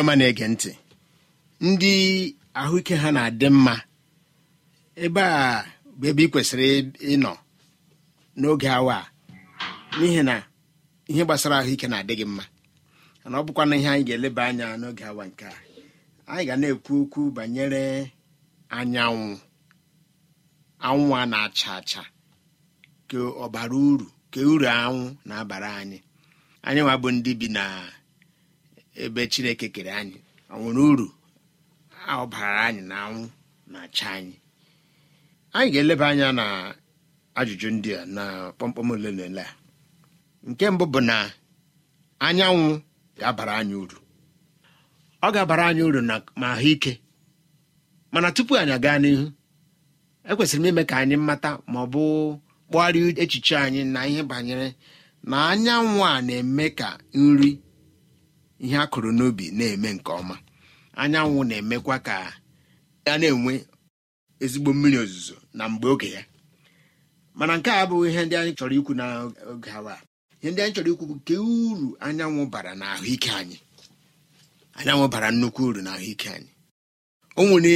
ọma na-ege ntị ndị ahụike ha na-adị mma ebe a bụ ebe ị kwesịrị ịnọ n'oge awa a n'ihi na ihe gbasara ahụike na-adị gị mma ana ọ bụkwa na ihe anyị ga-eleba anya n'oge awa nke a anyị ga na-ekwu okwu banyere anyanwụ anwụ a na-acha acha ka ọ bara uru ka uru anwụ na-abara anyị anyị nwa bụ ndị bi na ebe chineke kere anyị ọ nwere uru anyị na anwụ na-acha anyị anyị ga-eleba anya na ajụjụ ndị a na kpọmkpọm ole na ole a nke mbụ bụ na anyanwụ ga-abara anyị uru ọ ga-abara anyị uru na ma ahụike mana tupu anyị gaa n'ihu ekwesịrị m ime ka anyị mata ma ọ bụ kpọgharịa echiche anyị na ihe banyere na anyanwụ a na-eme ka nri ihe a kụrụ n'obi na-eme nke ọma anyanwụ na-emekwa ka a na-enwe ezigbo mmiri ozuzo na mgbe oge ya mana nke a abụghị ihe ndị anyị chọrọ ikwu n'oge awa ihe ndị anyị chọrọ ikwu bụ nke uru anyanwụ bara na ahụike anyị anyanwụ bara nnukwu uru na ahụike anyị o nwere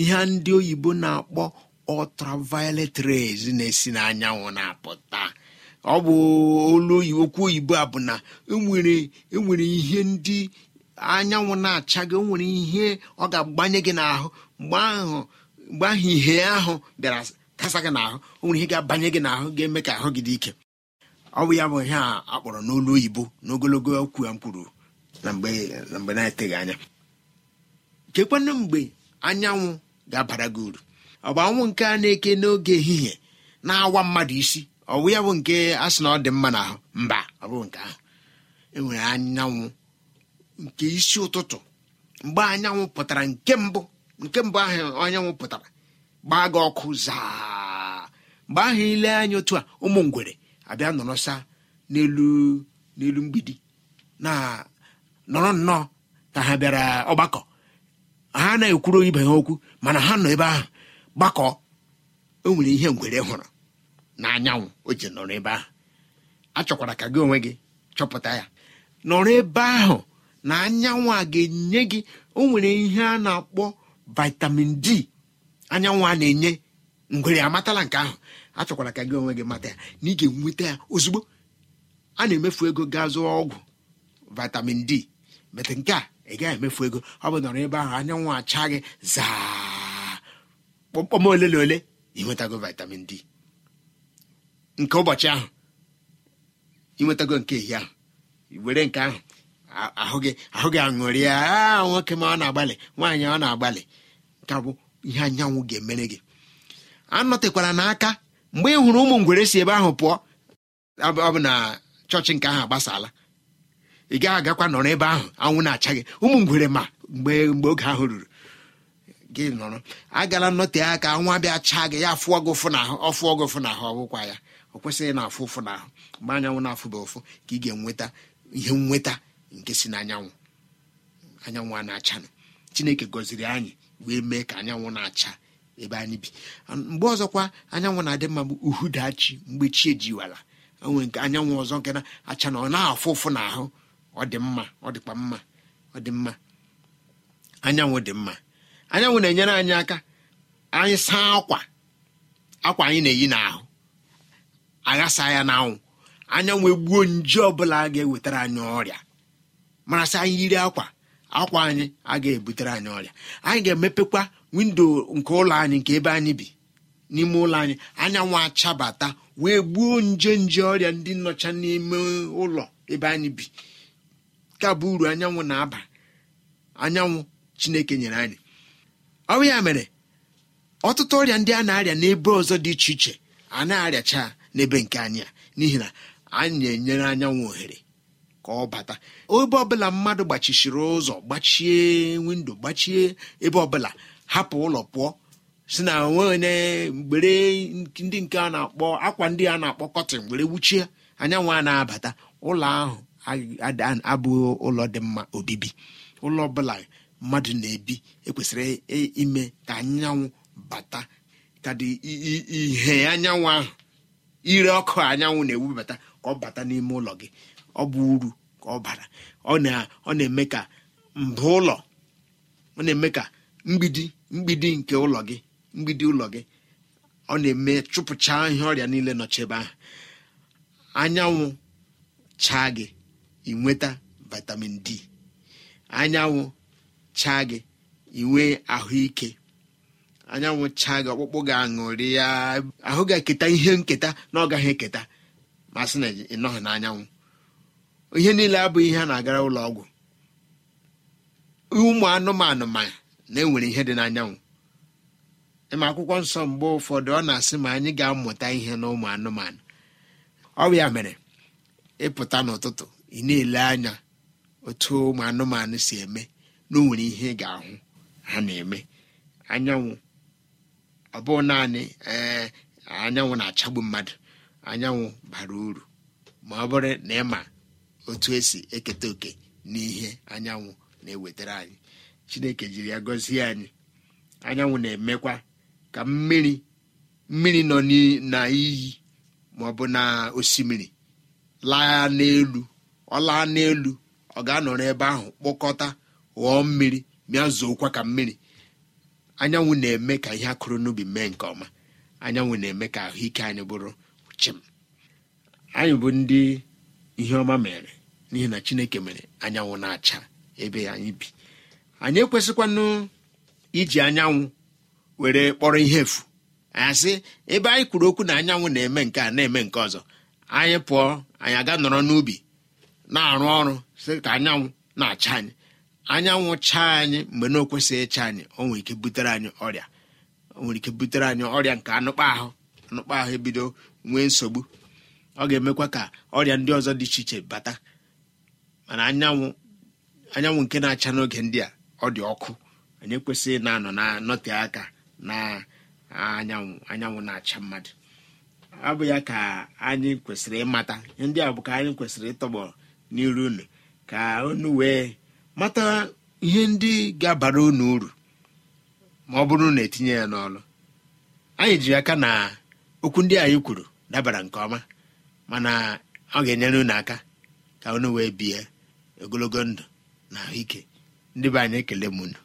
ihe ndị oyibo na-akpọ ultraviolet rays na-esi n'anyanwụ na-apụta ọ bụ olu okwu oyibo a bụ na enwere e ihe ndị anyanwụ na-acha gị nwere ihe ọ ga-agbanye gị n'ahụ mgbe ahụ ihe ahụ bịara kasa gị n'ahụ o nwere ihe ga-abanye gị n'ahụ ga-eme ka ahụ gị dị ike ọ bụ ya bụ ihe a kpọrọ n'olu oyibo n'ogologo okwu a m kwuru na mgbe na-eteghị anya chekwanụ mgbe anyanwụ ga-abara gị uru ọ bụ anwụ nke a na-eke n'oge ehihie na-awa mmadụ isi ọwụ ya bụ nke a sị na ọ dị mma na mba ọ bụ nke ahụ enwere anyanwụ nke isi ụtụtụ mgbe anyanwụ pụtara nke mbụ nke mbụ ahụ anyanwụ pụtara gbaa gị ọkụ zaa mgbe ahụ ile anya otu a ụmụ ngwere abịa nọrọsa n'elu n'elu mgbidi na nọrọ nnọọ ka ha bịara ọgbakọ ha anaghị ekwuru ibe ha okwu mana ha nọ ebe ahụ gbakọ o e nwere ihe ngwere hụrụ na o ji nọrọ ebe ahụ achọkwara ka gị onwe gị chọpụta ya nọrọ ebe ahụ na anyanwụ a ga-enye gị o nwere ihe a na-akpọ vitamin d anyanwụ a na-enye ngwere amatala nke ahụ achọkwara ka gị onwe gị mata ya na ị ga-enweta ya ozugbo a na-emefu ego gaa zụọ ọgwụ vitamin d metụ nke a ị gaghị emefu ego ọ bụ nọrọ ebe ahụ anyanwụ acha gị zaa kpọmkpọm ole na ole ị nwetago vitamin d nke ụbọchị ahụ inwetago nke ehihie ahụ were nke ahụ ahụ gị ahụ gị aṅụrịa a nwoke ma ọ na-agbalị nwaanyị ọ na-agbalị nke bụ ihe anyanwụ ga-emere gị anọtekwara n'aka mgbe ị hụrụ ụmụ ngwere si ebe ahụ pụọ ọ bụ na chọọchị nke ahụ agbasala ị gaghị agakwa nọrọ ebe ahụ anwụ na-acha gị ụmụ ngwere ma mgbe mgbe oge ahụ ruru gị nọrọ agala nnọte aka nwa bịa chaa gị ya fụọ gị ụfụ ọ fụọ gị ụfụ n'ahụ ọ bụkwa ya ọ kwesịghị na afụ ụfụ na ahụ mgbe anyanwụ na-afụba ụfụ ka ị ga-enweta ihe nnweta nke si n'anyanwụ anyanwụ a na-achanụ chineke gọziri anyị wee mee ka anyanwụ na-acha ebe anyị bi mgbe ọzọkwa anyanwụ na-adị mma bụ uhudachi mgbe chi ejiwala onwe nke anyanwụ ọzọ nke na-acha na ọ na-afụ ụfụ na ahụ ọ dị mma ọ dịkwa mma ọ dị mma anyanwụ dị mma anyanwụ na-enyere anyị aka anyị saa akwa akwa anyị na-eyi n'ahụ aghasa ya n'anwụ anyanwụ egbuo nje ọbụla a ga-ewetara anyị ọrịa marasị anyị yiri akwa akwa anyị a ga-ebutere anyị ọrịa anyị ga-emepekwa windo nke ụlọ anyị nke ebe anyị bi n'ime ụlọ anyị anyanwụ achabata wee gbuo nje nje ọrịa ndị nnọcha n'ime ụlọ ebe anyị bi ka bụ uru anyanwụ na-aba anyanwụ chineke nyere anyị ọ bụ ya mere ọtụtụ ọrịa ndị a na-arịa n'ebe ọzọ dị iche iche a na-arịacha n'ebe nke anyị a n'ihi na anyị na-enyere anyanwụ ohere ka ọ bata ebe ọbụla mmadụ gbachichiri ụzọ gbachie windo gbachie ebe ọbụla hapụ ụlọ pụọ si na onwe mgbere ndị nke a na-akpọ akwa ndị a na-akpọ kọtịn were wuchie anyanwụ a na-abata ụlọ ahụ abụghị ụlọ dị mma obibi ụlọ ọbụla mmadụ na-ebi ekwesịrị ime ka anyanwụ bata ka dị ihe anyanwụ ahụ ire ọkụ anyanwụ na-ewubata ka ọ bata n'ime ụlọ gị ọ bụ uru ka ọ bara ọ na-eme ka mbụ ụlọ ọ na-eme ka mgbidi mgbidi nke ụlọ gị mgbidi ụlọ gị ọ na-eme chụpụcha ihe ọrịa niile nọchebe ahụ anyanwụ chaa gị inweta vitamin d anyanwụ chaa gị inwe ahụike anyanwụ chaa gị ọkpụkpụ ga-aṅụrị ya ahụ ga-eketa ihe nketa na ọ gaghị eketa ma sị na ịnọghị n'anyanwụ ihe niile abụghị ihe a na-agara ụlọ ọgwụ ụmụ anụmanụ ma na-enwere ihe dị n'anyanwụ ịma akwụkwọ nsọ mgbe ụfọdụ ọ na-asị ma anyị ga-amụta ihe na ụmụ anụmanụ ọbịa mere ịpụta n'ụtụtụ ị na-ele anya otu ụmụ anụmanụ si eme na o nwere ihe ị ga-ahụ ha na-eme anyanwụ ọ bụ naanị ee eh, anyanwụ na-achagbu mmadụ anyanwụ bara uru ma ọ bụrụ na ịma otu esi eketa oke n'ihe anyanwụ na-ewetara anyị chineke jiri ya gọzie anyị anyanwụ na-emekwa ka mmiri mmiri nọ na ma ọ bụ na osimiri laa n'elu ọ laa n'elu ọ ga-anọrọ ebe ahụ kpọkọta ghọọ mmiri bịa ka mmiri anyanwụ na-eme ka ihe akụrụ n'ubi mee nke ọma anyanwụ na-eme ka ahụike anyị bụrụ chim anyị bụ ndị ihe ọma mere n'ihi na chineke mere anyanwụ na-acha ebe anyị bi anyị ekwesịkwanụ iji anyanwụ were kpọrọ ihe efu asị ebe anyị kwuru okwu na anyanwụ na-eme nke a na-eme nke ọzọ anyị pụọ anyị aga nọrọ n'ubi na-arụ ọrụ sị ka anyanwụ na-acha anyị anyanwụ chaa anyị mgbe na okwesịghị ịcha anyị o nwere ike butere anyị ọrịa o nwere ike butere anyị ọrịa nke anụkpa ahụ anụkpa ahụ ebido nwee nsogbu ọ ga-emekwa ka ọrịa ndị ọzọ dị iche iche bata mana anyanwụ anyanwụ nke na-acha n'oge ndị a ọ dị ọkụ anyị ekwesịghị na-anọ na nọte aka na anyanwụ anyanwụ na-acha mmadụ ọ bụ ya ka anyị kwesịrị ịmata ndị a bụ ka anyị kwesịrị ịtọgbọ n'iru unu ka unu wee mata ihe ndị ga-abara unu uru ma ọ bụrụ na etinye ya n'ọlụ anyị jiri aka na okwu ndị anyị kwuru dabara nke ọma mana ọ ga-enyere unu aka ka unu wee bie ogologo ndụ na ike ndị be anyị ekele m unu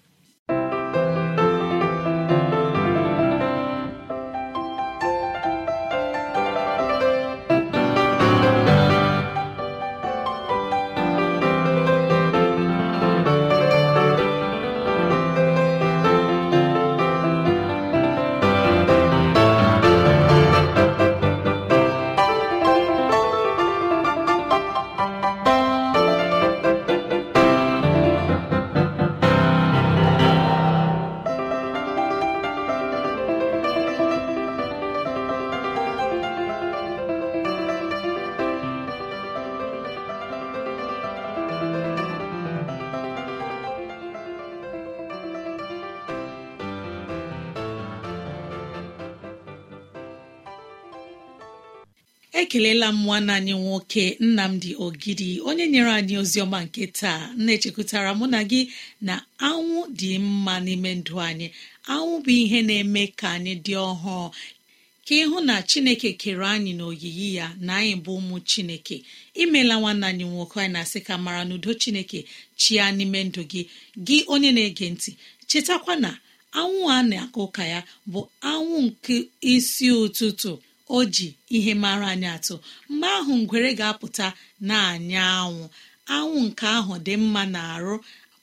ekelela m nwanne anyị nwoke nnamdi ogidi onye nyere anyị ozi ọma nke taa na-echekwutara mụ na gị na anwụ dị mma n'ime ndụ anyị anwụ bụ ihe na-eme ka anyị dị ọhụụ ka ịhụ na chineke kere anyị n'oyiyi ya na anyị bụ ụmụ chineke imela nwanne anyị nwoke anyị na-asị ka mara n'udo chineke chia n'ime ndụ gị gị onye na-ege ntị chetakwa na anwụ a na-akụ ụka ya bụ anwụ nke isi ụtụtụ o ji ihe mara anyị atụ mgbe ahụ ngwere ga-apụta na anya anwụ anwụ nke ahụ dị mma na arụ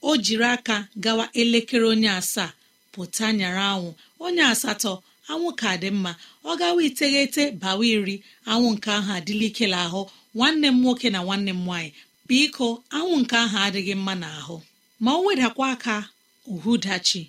o jiri aka gawa elekere onye asaa pụta nyara anwụ onye asatọ anwụ ka dị mma ọ gawa iteghete bawa iri anwụ nke ahụ adịla ahụ nwanne m nwoke na nwanne m nwaanyị biko anwụ nke ahụ adịghị mma n'ahụ ma o wedakwa aka uhudachi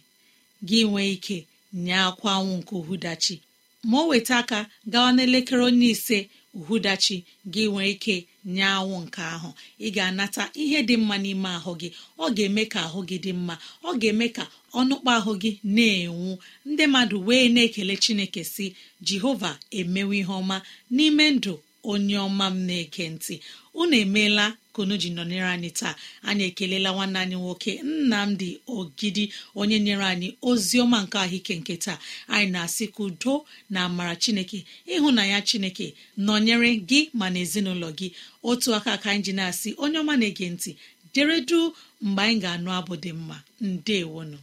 gị nwee ike nye akwa anwụ nke uhudachi ma o weta aka gawa n'elekere onye ise uhudachi gị nwere ike nye anwụ nke ahụ ị ga-anata ihe dị mma n'ime ahụ gị ọ ga-eme ka ahụ gị dị mma ọ ga-eme ka ọnụkpa ahụ gị na-enwu ndị mmadụ wee na-ekele chineke si jehova emewe ihe ọma n'ime ndụ onye ọma m na-eke ntị unu emeela kunu ji nọnyere anyị taa anyị ekelela nwanne anyị nwoke nnamdị ogidi onye nyere anyị ozi ọma nke ahụike nke taa anyị na-asị ka na amara chineke ịhụ na ya chineke nọnyere gị ma na ezinụlọ gị otu aka ka anyị asị onye ọma na-ege ntị deredu mgbe anyị ga-anụ abụ dị mma ndewonu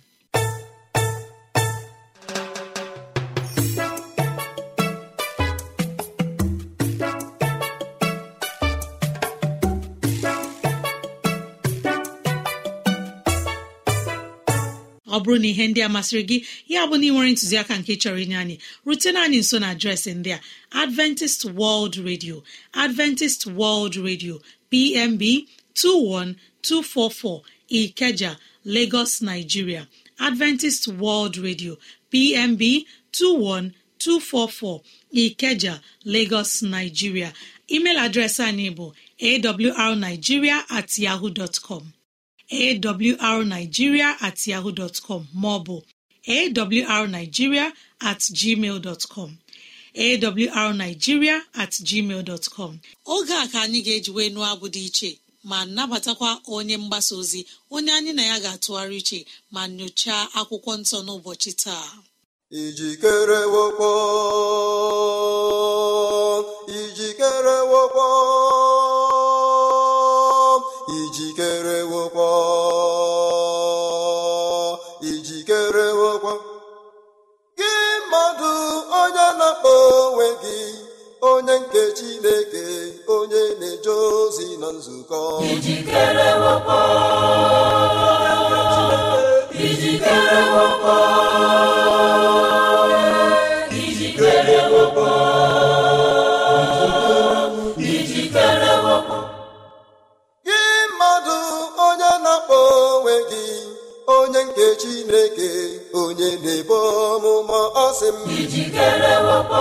ọ bụrụ na ihe ndị a masịrị gị ya bụ na ị ntụziaka nke chọrọ inye anyị rutena anyị nso na adreesị ndị a adventist world radio adventist world radio pmb 21244 ikeja lagos nigeria adventist world radio pmb 21244 ikeja lagos nigeria email adreesị anyị bụ awrnigeria at yahoo dot com arigiria at yaho bụ maọbụ arigiria oge a ka anyị ga-ejiwe nụọ abụ dị iche ma nabatakwa onye mgbasa ozi onye anyị na ya ga-atụgharị iche ma nyochaa akwụkwọ nsọ n'ụbọchị taa ijikere wokpọ onye nke Chineke onye na-eje ozi na nzukọ ijikere wepọ ijikere wepọ ijikere wepọ ijikere wepọ gị mmadụ onye na-akpọ onwe gị onye nke Chineke onye na-ebo ọmụma ọ sị m ijikere wepọ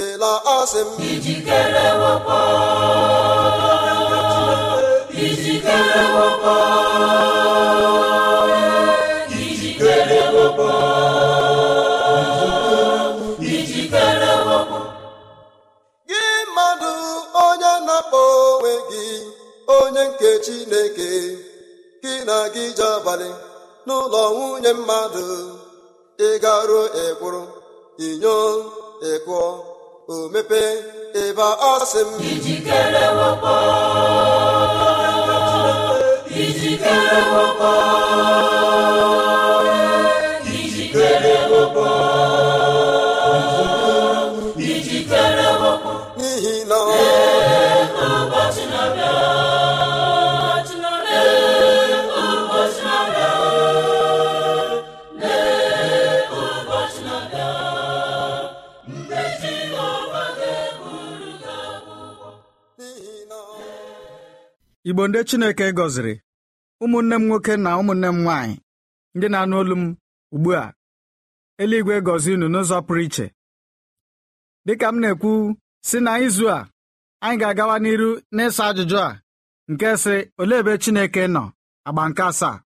ịla asị m ijikere gị mmadụ onye na-akpọ onwe gị onye nke Chineke gị na gị je abalị n'ụlọ nwunye mmadụ ị garuo ịkwụrụ inyo ịkụọ o mepee ebe ọ sị m ijikere wepọ ijikere igbo ndị chineke gọziri ụmụnne m nwoke na ụmụnne m nwaanyị ndị na-anụ olu m ugbu a eluigwe gọzi unu n'ụzọ pụrụ iche dịka m na-ekwu si na izu a anyị ga-agawa n'iru n'ịsa ajụjụ a nke sị olee ebe chineke nọ agba nke asaa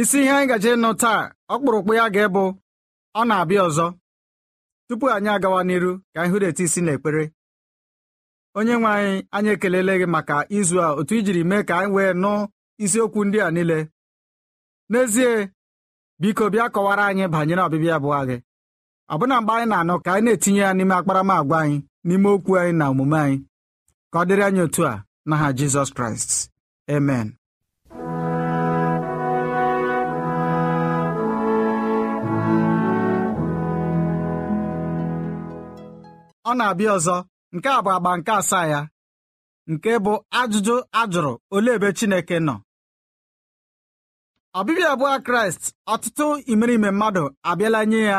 isi ihe anyị gaje ịnụ taa ọkpụrụkpụ ya ga-ebụ ọ na-abịa ọzọ tupu anyị agawa n'iru ka anyị hụrụ eti isi na ekpere onye nwe anyị anyị ekelele gị maka izu a otu ijiri mee ka anyị wee nụ isiokwu ndị a niile n'ezie biko bịa kọwara anyị banyere ọbịbịa bụ gị ọbụna mgbe anyị na-anọ ka anyị na-etinye ya n'ime akparamagwa anyị n'ime okwu anyị na omume anyị ka ọ dịrị anyị otu a n'aha Jizọs Kraịst amen ọ na-abịa ọzọ nke a bụ agba nke asaa ya nke bụ ajụjụ ajụrụ olee ebe Chineke nọ ọbịbịa abụọ Kraịst ọtụtụ imerime mmadụ abịala nye ya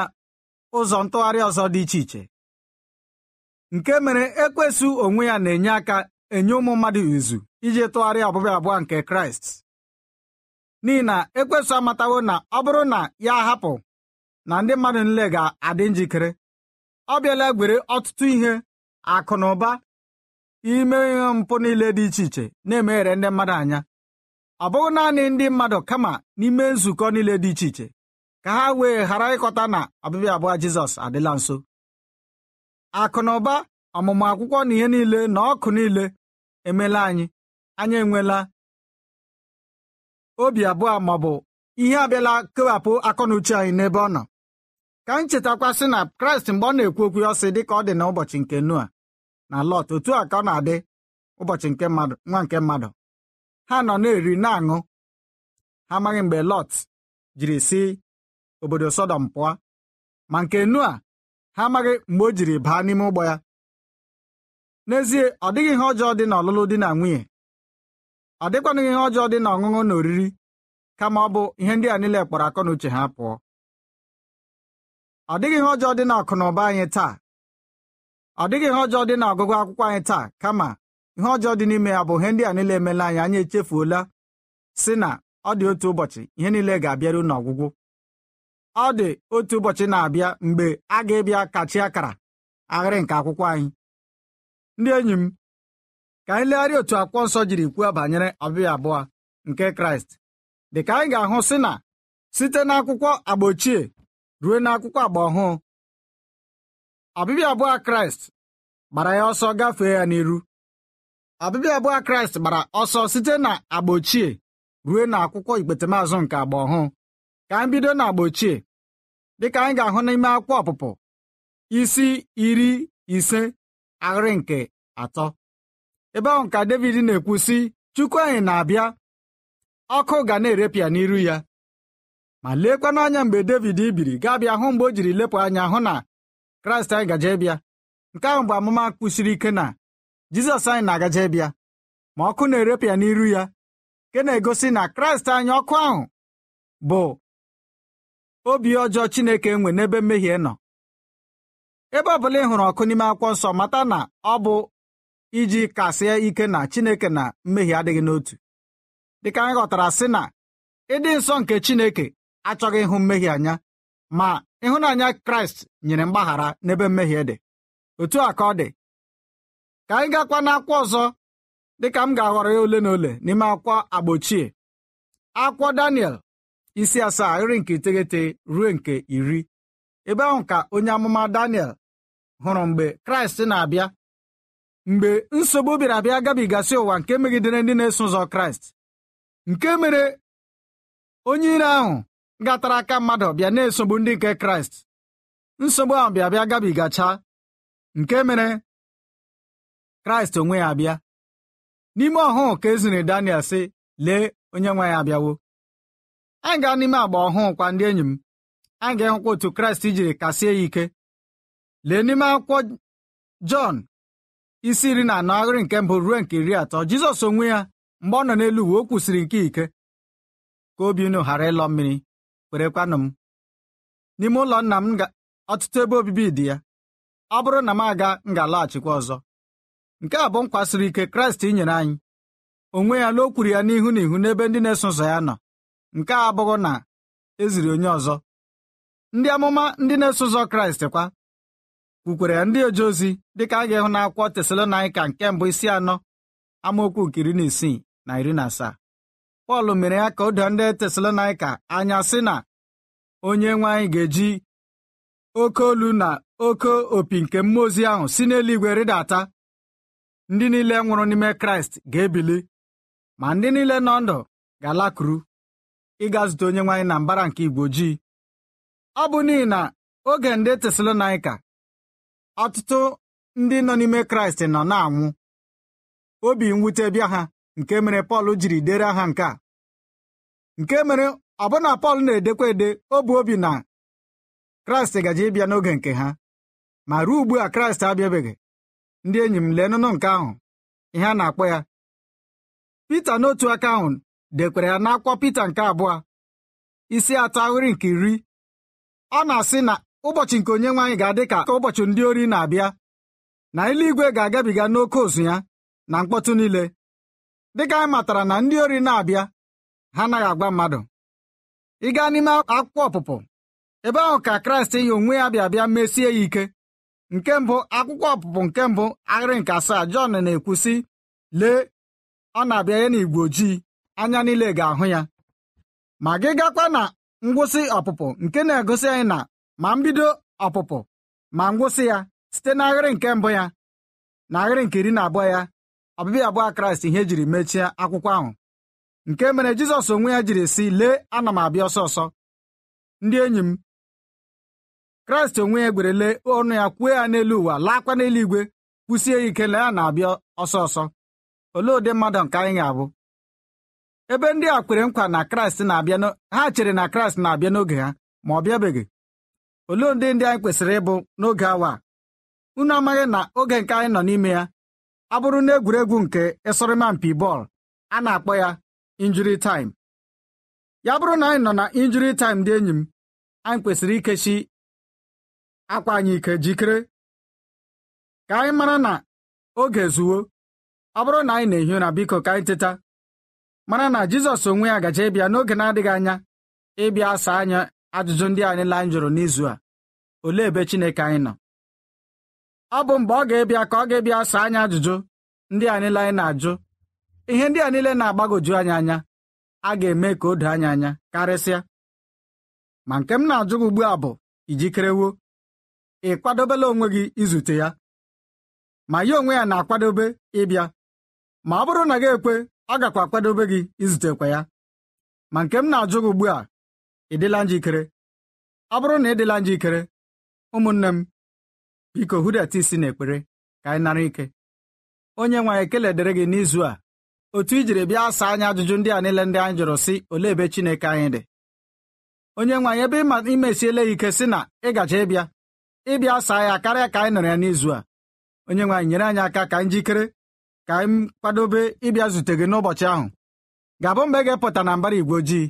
ụzọ ntụgharị ọzọ dị iche iche nke mere ekwesị onwe ya na-enye aka enye ụmụ mmadụ izu iji tụgharịa ọbịbịa abụọ nke Kraịst n'ihi na ekwesị amatawo na ọ bụrụ na ya hapụ na ndị mmadụ nle ga-adị njikere ọ bịala gwere ọtụtụ ihe akụ na ụba ime ihe mpụ niile dị iche iche na-emeghere ndị mmadụ anya ọ bụghị naanị ndị mmadụ kama n'ime nzukọ niile dị iche iche ka ha wee ghara ịkọta na ọbịbịa abụọ Jizọs adịla nso akụ na ụba ọmụmụ akwụkwọ na ihe niile na ọkụ niile emela anyị anyị enwela obi abụọ ma ọ bụ ihe abịala kewapụ akọnuche anyị n'ebe ọ nọ ka m chetakwasị na Kraịst mgbe ọ na-ekwu okwu ya ọsị dị ka ọ dị n'ụbọchị nke nua. na lọt otu a ka ọ na-adị ụbọchị nke mmadụ nwa nke mmadụ ha nọ na-eri na-aṅụ ha amaghị mgbe lọt jiri si obodo sọdọm pụọ ma nke nu a ha amaghị mgbe o jiri baa n'ime ụgbọ ya n'ezie ọ dịghị ihe ọjọọ dị na ọlụlụ dị na nwunye ọ dịkwanụghị ihe ọjọọ dị na ọṅụṅụ na oriri kama ọ bụ ihe ndị a niile kpọrọ akọ na uche ha pụọ ọ dịghị ihe ọjọọ dị na akụ na ụba anyị taa ọ dịghị ihe ọjọọ dị n'ọgụgụ akwụkwọ anyị taa kama ihe ọjọọ dị n'ime ya bụ ihe ndị a niile emela anyị anyị echefuola si na ọ dị otu ụbọchị ihe niile ga-abịaru n'ọgwụgwụ ọ dị otu ụbọchị na-abịa mgbe a ga-ebịa kachi akara aghịrị nke akwụkwọ anyị ndị enyi m ka anyị legharịa otu akwụkwọ nsọ jiri kwuo banyere ọbịa abụọ nke kraịst dị ka anyị ga-ahụ si na site n'akwụkwọ agba ochie ruo n'akwụkwọ agba ọhụụ ọbịbịa abụọ kraịst gbara ya ọsọ gafee ya n'iru ọbịbịa abụọ kraịst gbara ọsọ site na agba ochie ruo na akwụkwọ ikpetemazụ nke agba ọhụụ ka anyị bido na agba ochie dịka anyị ga-ahụ n'ime akwụkwọ ọpụpụ isi iri ise ahịrị nke atọ ebe ahụ ka David na-ekwu sị Chukwu anyị na-abịa ọkụ ga na-erepịa n'iru ya ma leekwa n'anya mgbe David biri gaa bịa hụ mgbe o jiri lepụ anya hụ na kraịst anyị gaje bịa nke ahụ bụ amụma kwụsiri ike na jizọs anyị na-agaje bịa ma ọkụ na-erepịa n'iru ya nke na-egosi na kraịst anyị ọkụ ahụ bụ obi ọjọọ chineke enwe n'ebe mmehie nọ ebe ọ bụla ị hụrụ ọkụ n'ime akwụkwọ nsọ mata na ọ bụ iji kasịa ike na chineke na mmehie adịghị n'otu dịka anyị ghọtara sị na ịdị nsọ nke chineke achọghị ịhụ mmehie anya ma ịhụnanya kraịst nyere mgbaghara n'ebe mmehie dị otu a ka ọ dị ka anyị gakwa n'akwụkwọ ọzọ dịka m ga-aghọrọ ya ole na ole n'ime akwụkwọ agba ochie akwụkwọ Daniel isi asaa iri nke iteghete ruo nke iri ebe ahụ ka onye amụma Daniel hụrụ mgbe kraịst na-abịa mgbe nsogbu bịara abịa gabigasị ụwa nke megidere ndị na-eso ụzọ kraịst nke mere onye ire ahụ gatara aka mmadụ bịa na-esogbu ndị nke kraịst nsogbu ahụ bịa bịa gabigacha nke mere kraịst onwe ya abịa n'ime ọhụụ ka eziri daniel sị lee onye nwe ya abịawo anyị gaa n'ime agba ọhụụ kwa ndị enyi m anyị ga-ehụkwa otu kraịst jiri kasie ya ike lee n'ime akwụkwọ jọn isi iri na anọ ahịrị nke mbụ ruo nke iri atọ jizọs onwe ya mgbe ọ nọ n'elu uwe o kwusiri nke ike ka obi unu ghara ịlọ mmiri werekwanụ m n'ime ụlọ nna m ọtụtụ ebe obibi dị ya ọ bụrụ na m aga m ga alọghachikwa ọzọ nke a bụ m kwasiri ike kraịst nyere anyị onwe ya n'okwuru o kwuru ya n'ihu n'ihu n'ebe ndị na-eso ụzọ ya nọ nke a abụghị na eziri onye ọzọ ndị amụma ndị na-eso ụzọ kraịst kwa kwukwere ya ndị oje ozi dịka a ga-ịhụ akwụkwọ Tesalonaịka nke mbụ isi anọ amaokwu nke iri na isii na iri na asaa Pọl mere ya ka ụdọ ndị Tesalonaika anya si na onye nwe anyị ga-eji oke olu na oke opi nke mmụọ ozi ahụ si n'eluigwe rịdata ndị niile nwụrụ n'ime Kraịst ga-ebili ma ndị niile nọ ndụ ga-alakụrụ ịga zute onye nwaanyị na mbara nke igwe ojii ọ bụ n'ihi na oge ndị Tesalonaika ọtụtụ ndị nọ n'ime Kraịst nọ na-anwụ obi mwute bịa ha nke mere Pọl jiri dere ha nke a nke mere ọbụna Pọl na-edekwa ede obi bụ obi na Kraịst gaji ịbịa n'oge nke ha ma ruo ugbu a Kraịst abịabeghị ndị enyi m lee n'ụnụ nke ahụ ihe a na-akpọ ya Pita n'otu aka ahụ dekwara ya n'akwụkwọ Pita nke abụọ isi atọ ahịrị nke iri ọ na-asị na ụbọchị nke onye nwaanyị ga-adị ka ụbọchị ndị ori na-abịa na eluigwe ga-agabiga n'oke ozu ya na mkpọtụ niile dịka anyị matara na ndị ori na-abịa ha anaghị agwa mmadụ ị gaa n'ime akwụkwọ ọpụpụ ebe ahụ ka kraịst yi onwe ya bịa bịa mesie ya ike nke mbụ akwụkwọ ọpụpụ nke mbụ ahịrị nke asaa jọn na-ekwu sị lee ọ na-abịa ya n'igwe ojii anya niile ga-ahụ ya ma gị gakwa na ngwụsị ọpụpụ nke na-egosi anyị na ma mbido ọpụpụ ma ngwụsị ya site n'ahịrị nke mbụ ya na ahịrị nke iri na abụọ ya ọbịbịa abụọ kraịst ihe jiri mechie akwụkwọ ahụ nke mere jizọs onwe ya jiri sị lee ana m abịa ọsọ ọsọ ndị enyi m kraịst onwe ya gwere lee ọnụ ya kwuo ya n'elu ụwa laakwa igwe kwụsie ya ike na ya na-abịa ọsọ ọsọ olee ụdị mmadụ nke anyị ga-abụ ebe ndị a kwere nkwa na kraịst na-abịa ha chere na kraịst na-abịa n'oge ha ma ọ bịabeghị olee ndị ndị anyị kwesịrị ịbụ n'oge awa unu amaghị na oge nke anyị nọ n'ime ya abụrụ bụrụ na egwuregwu nke ịsọrịma mpi bọọlụ a na-akpọ ya injuri ya bụrụ na anyị nọ na injuri taịm dị enyi m anyị kwesịrị ikechi akwa anyị ike jikere ka anyị mara na oge zuwo ọ bụrụ na anyị na-ehi ụra biko ka anyị teta mara na Jizọs onwe ya gaje ịbịa n'oge na-adịghị anya ịbịa saa anya ajụjụ ndị anyị la anyị jụrụ n'izu a olee ebe Chineke anyị nọ ọ bụ mgbe ọ ga-ebịa ka ọ ga-ebịa saa anyị ajụjụ ndị a niile anyị na-ajụ ihe ndị a niile na-agbagoju anyị anya a ga-eme ka o doo anyị anya karịsịa ma nke m na-ajụ gị ugbu a bụ ijikerewo ị kwadobela onwe gị izute ya ma ya onwe ya na-akwadobe ịbịa ma ọ bụrụ na gị ekwe ọ gakwa akwadobe gị izutekwa ya ma nke m na-ajụ gị ugbu a ịdịla njikere ọ bụrụ na ị dịla njikere ụmụnne m biko hụdata isi n'ekpere ka anyị nara ike onye nwe anyị ekele dịrị gị n'izu a otu i jiri bịa saa anyị ajụjụ ndị a niile ndị anyị jụrụ sị olee ebe Chineke anyị dị onye nwe anyị ebe imesiele imesiela ike sị na ị gaje ịbịa ịbịa saa ya karịa ka anyị nọrọ ya n'izu a onye nwe anyị nyere anyị aka ka anyị jikere ka anyị kwadobe ịbịa zute gị n'ụbọchị ahụ ga-abụ mgbe ị ga-epụta na mbara igwe ojii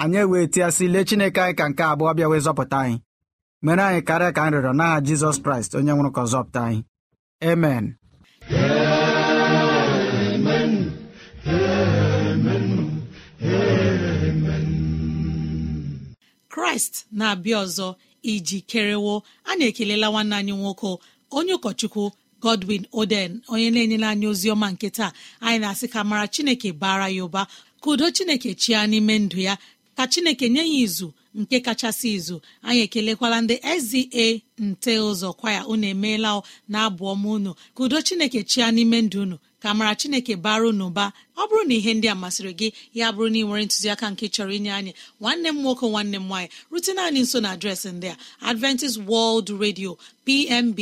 anyị ewee tịasị lee Chineke anyị ka nke abụọ bịa wee zọpụta anyị mere anyị karịa ka anyị rịọrọ n'aha jizọs kraịst onye nwụrụ ka ọzọpụta anyị amen kraịst na-abịa ọzọ iji kerewo a na-ekelela nwanne anyị nwoke onye ụkọchukwu godwin oden onye na-enyela anyị ozi ọma nke taa anyị na-asị ka mara chineke bara ya ụba ka udo chineke chia n'ime ndụ ya ka chineke nye ya izu nke kachasị izu anyị ekelekwala ndị eze nte ụzọ kwaya unu emeela na-abụ unu ka udo chineke chia n'ime ndụ unu ka mara chineke bara n'ụba ọ bụrụ na ihe ndị a masịrị gị ya bụrụ na ị nwere ntụziaka nke chọrọ inye anyị nwanne m nwoke nwanne m nwaanyị rutena anyị nso na adreesị ndị a adventist world radio pmb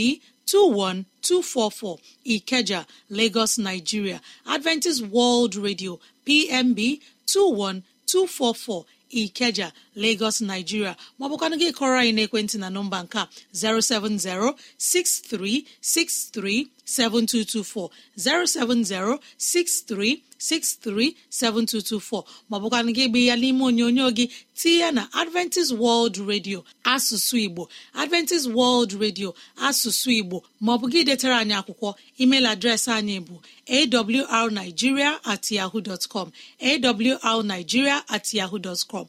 21244 ikeja lagos nigeria adventist world radio pmb 21244 Ikeja Lagos Nigeria maọbụkwanụ gị kọrọ anyị n'ekwentị na nọmba nke a 070 6363 7224 070 7224 maọbụkwana gị gbe ya n'ime onyonyo gị tinye ya na Adventist World Radio asụsụ Igbo Adventist World Radio asụsụ Igbo maọbụ gị detara anyị akwụkwọ email adreesị anyị bụ awrnigeria at yahoo com at yahoo dot com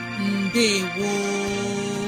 mbe gboo